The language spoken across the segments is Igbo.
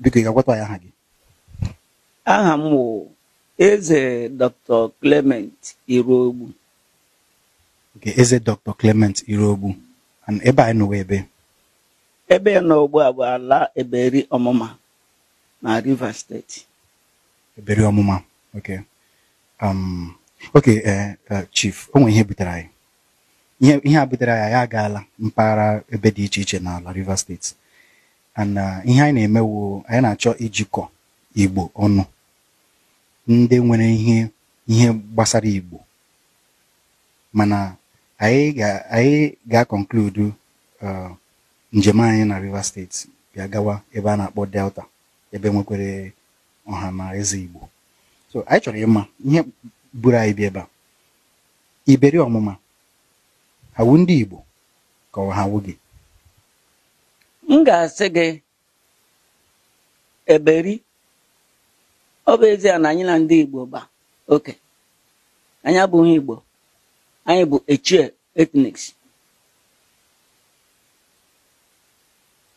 biko ga-agwata ya aha gị aha m eze dr clement Iroogbu, nke eze dr clement Iroogbu, ebe anyị nọwa ebe ebe nọ ugbu a bụ ala eberi ọmụma na rivers steeti eberi ọmụma ok um, ok eh, eh, chief o nwere ihe butere anyị ihe a butere anyị anyị agaala mpaghara ebe dị iche iche n'ala rivers steeti na uh, ihe anyị na-emewo anyị na-achọ ijikọ igbo ọnụ ndị nwere ihe gbasara igbo mana anyị ga anyị ga-akọnkludu uh, njem anyị na Rivers steeti bịa gawa ebe a na-akpọ delta ebe nwekwere ọha na eze igbo so anyị chọrọ ịma ihe buru anyị bịa ebe a iberi ọmụma wụ ndị igbo ka ọ ha wụ gị m ga-asị gị eberi ọ bụ ezie na anyị na ndị Igbo gba oke anyị abụghị Igbo anyị bụ echie etniks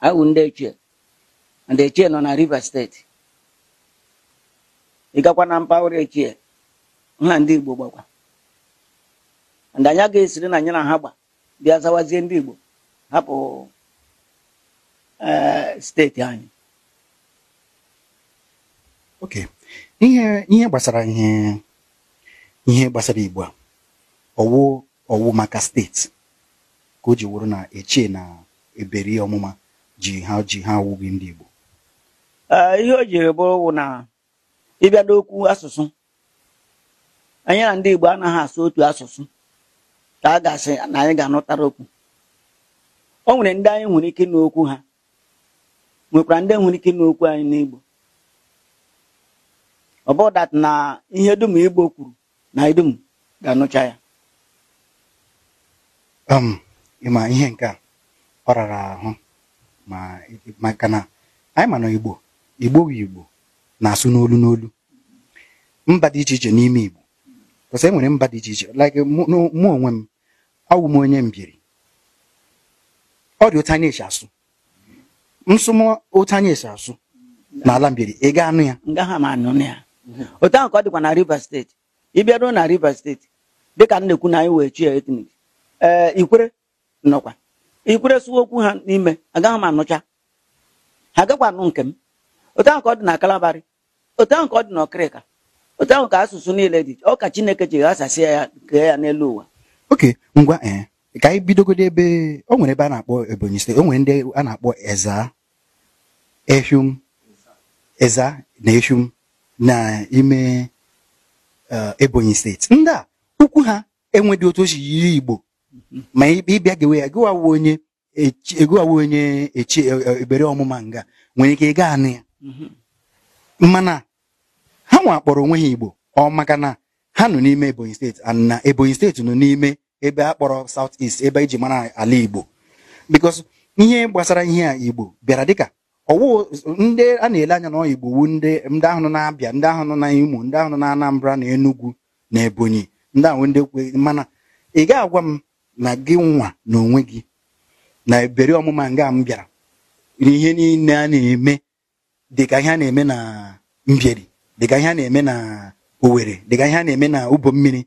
anyị bụ ndị echie ndị echie nọ na Rivers steeti ị gakwa na mpaghara echie na ndị Igbo gbakwa ndị anyị agaghị esiri na anyị na ha gba bịa zawazie ndị Igbo hapụ steeti anyị oke ihe gbasara ihe gbasara igbo a ọwụ ọwụ maka steeti ka o ji wụrụ na echie na eberi ọmụma ji ha ji ha ndị igbo uh, ihe o jiri bụrụ wụ na ịbịa n'okwu asụsụ anyị na ndị igbo anaghị asụ otu asụsụ ka a gasị na anyị ga-anụtara okwu o nwere ndị anyị nwere ike n'okwu ha nwekwara ndị nwere ike ime okwu anyị n'igbo ọ bụ na ihe dum igbo kwuru na idum ga-anụcha ya um, ịma ihe nke a ọ rara ahụ maka na anyị ma na igbo igbo igbo na-asụ n'olu n'olu mba dị iche iche n'ime igbo kwụsị e nwere mba dị iche iche like mụ onwe m awụ m onye mbiri ọ dị otu anyị asụ nsụmụ otu anyị esi asụ n'ala mbiri ị ga anụ ya ngaghị m anụ ya otu ahụ ka ọ dịkwa na Rivers steeti ị bịaruo na Rivers steeti dịka m na-ekwu na anyị wee chi ya etnik ee ikwere nọkwa ikwere sụwa okwu ha n'ime agaghị m anụcha ha agakwa anụ nke m otu ahụ ka ọ dị na Kalabari otu ahụ ka ọ dị na Ọkịrịka otu ahụ ka asụsụ niile dị ọ ka Chineke ji ghasasịa ya kee ya n'elu ụwa oke ngwa ee ka anyị bidogodo ebe o nwere ebe a na-akpọ Ebonyi steeti o nwere ndị a na-akpọ Ezza ehum eza na ehum n'ime eh, Ebonyi steeti ndị a ukwu ha enwedị otu ochi yiri Igbo ma ịbịa gewe ya gịwawe onye egowawe onye echi eh, eh, ebere ọmụma nga nwere ike ịga anụ ya mana ha nwa akpọrọ onwe ha Igbo ọ maka na ha nọ n'ime Ebonyi steeti na Ebonyi steeti nọ n'ime ebe a kpọrọ South East ebe iji e mara ala Igbo because ihe gbasara ihe a Igbo bịara dịka ọwụ ndị a na-ele anya na igbo wu ndị ndị ahụ nọ na-abịa ndị ahụ nọ na imo ndị ahụ nọ na anambra na enugu na ebonyi ndị ahụ ndị kwe mana ị ga agwa m na gị nwa na onwe gị na ebere ọmụma nga m bịara ihe niile a na-eme dịka ihe a na-eme na mbieri dịka ihe a na-eme na owere dịka ihe a na-eme na ụbọ mmiri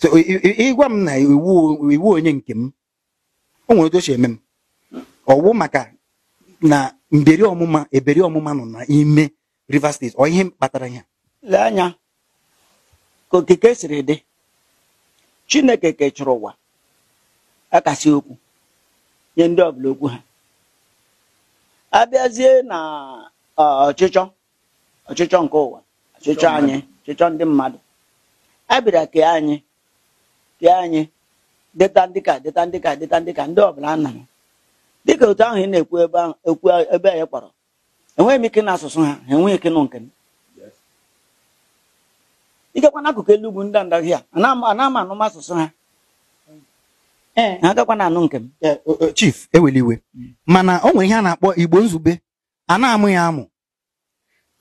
so ịgwa m na iwu onye nke m o nwere otu o eme m ọwụ maka na mberi ọmụma eberi ọmụma nọ n'ime Rivers steeti ọ ihe kpatara ya lee anya ka okike siri dị Chineke kechọrọ ụwa akasị okwu nye ndị ọbụla okwu ha abịazie na ọchịchọ ọchịchọ nke ụwa ọchịchọ anyị ọchịchọ ndị mmadụ a bịara anyị kee anyị dịta ndị ka deta ndị ka deta ndị ka ndị ọbụla anara dịka otu ahụ ị na-ekwu ebe ahụ ekwu ebe anyị kpọrọ enweghị m ike na asụsụ ha ha enweghị ike nụ nke m igakwa n'akụkụ elu ugwu ndị ndahị a ana-ama anụm asụsụ ha e. ha agakwa na anụ nke m e, chief iwe: mm. mana o nwere ihe a na-akpọ igbo nzube a na-amụ ya amụ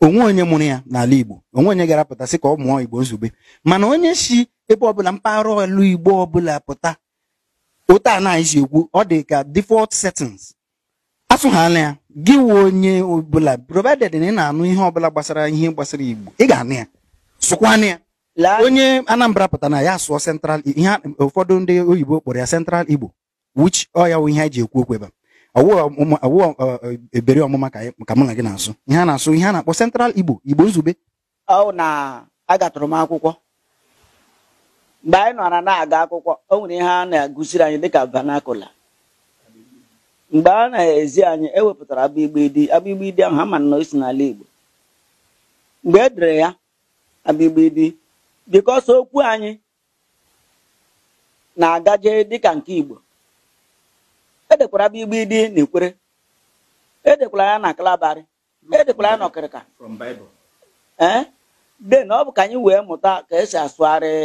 onwe onye mụrụ ya n'ala igbo onwe onye gara pụta sị ka ọ mụọ igbo nzube mana onye si ebe ọbụla mpaghara elu igbo ọbụla pụta otu a na ekwu ọ dị ka default settings asụghala ya gị wuo onye ọbụla provided na ị na-anụ ihe ọbụla gbasara ihe gbasara igbo ị ga-anụ ya sụkwanụ ya onye anambra pụta na ya sụọ central ihe ụfọdụ ndị oyibo kpọrọ ya central igbo which ọ ya wụ ihe a ji ekwu okwu ebe ọwụ ebere ọmụma ka mụ na gị na-asụ ihe a na-asụ ihe a na-akpọ central igbo igbo nzube ọ na agatụrụ m akwụkwọ mgbe anyị nọra na-aga akwụkwọ o nwere ihe a na-agụziri anyị dịka vanakula mgbe a na-ezi anyị ewepụtara abịgbidi abịgbidi ahụ ha ma na o si n'ala Igbo mgbe e dere ya abịgbidi bikọs okwu anyị na-agaje dịka nke Igbo edekwara abịgbidi na Ikwere edekwara ya na Kalabari edekwara ya n'ọkịrịka ee den ọ bụ ka anyị wee mụta ka esi asụgharị